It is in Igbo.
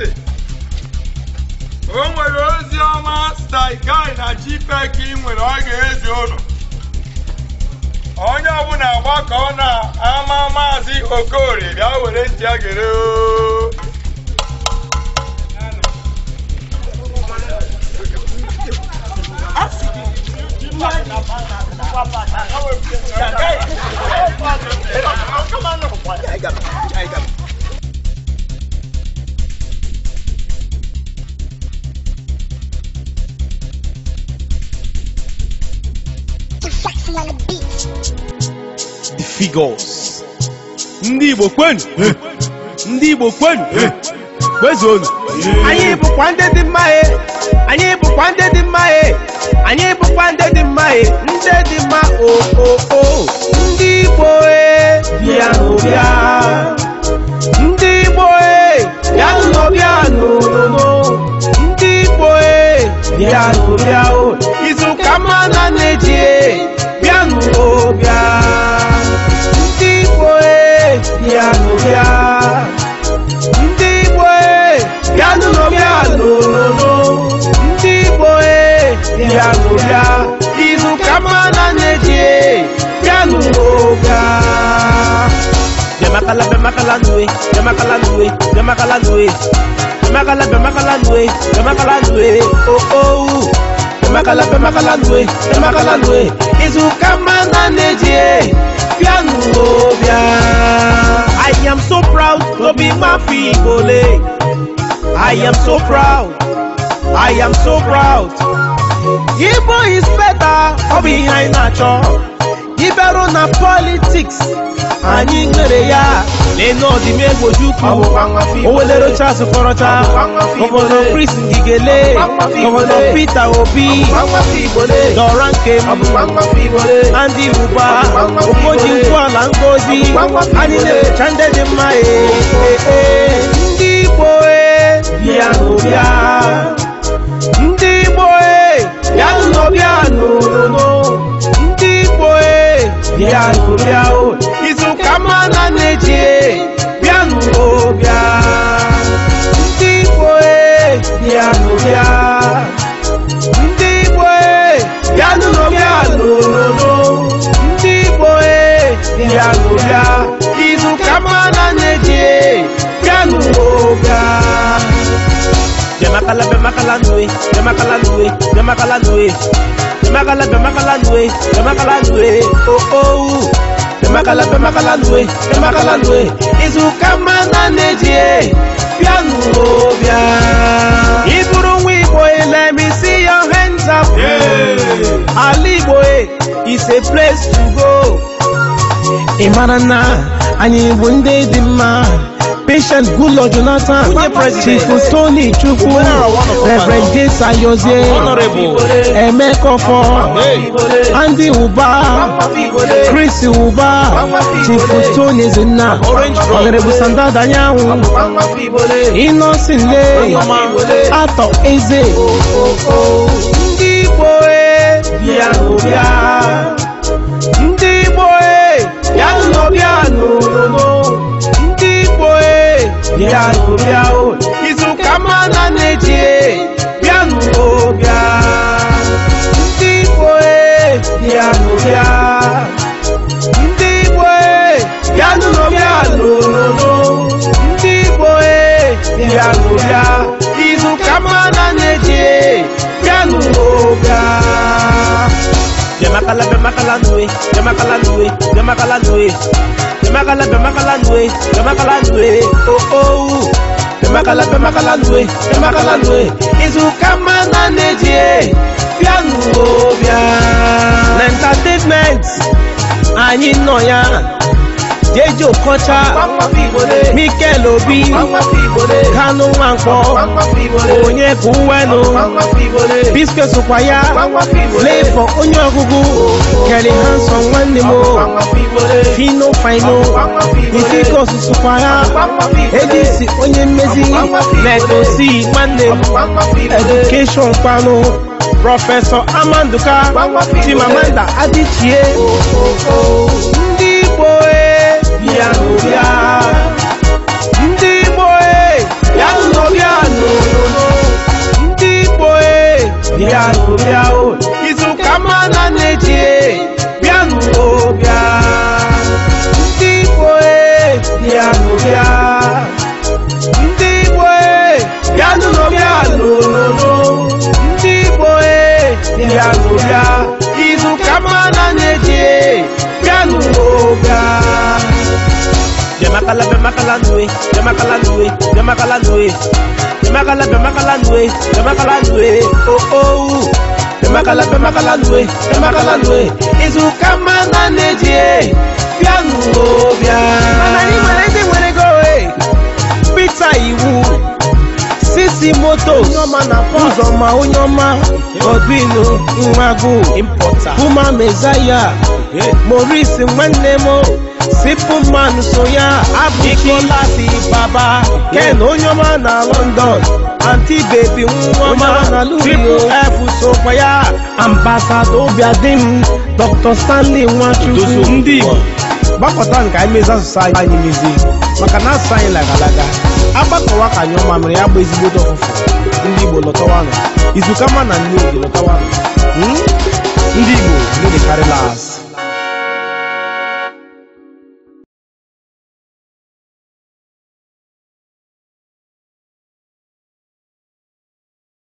ntị o nwere ozi ọma staigai na jipek ị nwere ọ ga-ezi ụlọ onye ọbụla gbakọọ na ama maazị okori. bịa were ntị a gere Come figures ndị igbo kwenu ndị igbo kwenu kwezuonu anyị bụkwa ndị dị mma anyị bụkwa ndị dị mma anyị bụkwa ndị dị mma ndị dị mma o ndị igbo bịa n'ụbịa ndị igbo bịa n'ụbịa n'ụlọ ndị igbo bịa n'ụbịa mana neje yanu oga. Bẹ̀mákàlá nwe. nùwé bẹ̀mákàlá nùwé bẹ̀mákàlá nùwé bẹ̀mákàlá bẹ̀mákàlá nùwé bẹ̀mákàlá oh. ooo bẹ̀mákàlá bẹ̀mákàlá nùwé bẹ̀mákàlá nùwé ìzùkà mana neje yanu oga. I am so proud to be Mafi Igbole. Eh. I am so proud. I am so proud. Igbo is better, ọ bụ ihe anyị na-achọ iberu na politiks anyị nwere ya na-ene ọdịmegwu Ojukwu Owelere Charles Okorocha gọvanọ Chris Ngigele gọvanọ Peter Obi Dora Nkem Andy Uba Okoji Nkwuala Ngozi anyị na ndị dị mma ndị Igbo e. e. bịa nu bịa o izu ka mma na na-eji bịa nu o bịa ndị igbo e bịa nu bịa ndị igbo e bịa nu no bịa lololo ndị igbo e bịa nu bịa izu ka mma na na-eji bịa nu o bịa Bèma kalè, bèma kalè nouè, bèma kalè nouè, bèma kalè nouè Bèma kalè, bèma kalè nouè, bèma kalè nouè Bèma oh, oh. kalè, bèma kalè nouè, bèma kalè nouè E sou kèp man nan e jè, bè an nou o bè I wi buron wè boè, let me see your hands up Ali boè, it's a place to go E marana, anye yi bun de diman patient good lord jonathan chifu tony chukwu ah, reverend james ayoze emekofo andy uba chris uba chifu tony Zina, honorable sandada anyanwụ innocent lee atọ eze oh, oh, oh. ndị igbo e bịa n'ụbịa bịa n'ụbịa o izu ka mma na na-eji e bịa n'ụbịa ndị igbo e bịa n'ụbịa ndị igbo e bịa n'ụbịa n'ụlọ e bịa n'ụbịa Jamakala Bemakala nwe, Jamakala Nui, Jamakala Nui, Jamakala Bemakala Nui, Jamakala Nui, oh oh, Jamakala Bemakala Nui, Jamakala Nui, Izukamana Nejie, Pianu Obia, Entertainment, Anyi Noya. Dejo Kọcha Mikel Obi Kanu Nwankwo Onyekuwenu Biscuit sokwa ya Flavour onye ọgụgụ Kelly Hanson nwanne m Fino Fino Ifikos sokwa ya Edisi onye mmezi Legosi nwanne m Education kpanu Prọfesọ Amanduka Chimamanda Adichie na na-eji bịanụ bịa ndị Igbo e, bịanụ bịa ndị Igbo e, bịanụ bịanụ ndị Igbo e, bịanụ bịa izu ka mma na na-eji bịanụ bịa bịamakala bịamakala nue bịamakala nue bịamakala nue bịamakala bịamakala nue bịamakala nue oo Emakala pemakala lue emakala lue izuka mana n'eji e, bịa n'ụlọ manani mana anyị nwere ndị e. pita iwu sisi motos ụzọma onye ọma odinu nwagu buma mezaya maurice nwanne m simple man soya abdulkolasi baba ken onyoma na london anti baby nwoma na lulu f sokwaya ambasado obiadim dr stanley nwachukwu ndị igbo gbapụta nke anyị mezi asụsụ anyị mezi maka na asụsụ anyị lagalaga agbakọwa ka anyị ọma mere ya gba ezigbote ọfụfụ ndị igbo lọtawanụ izuka ma na nne oge lọtawanụ hmm? ndị igbo ndị karịla asị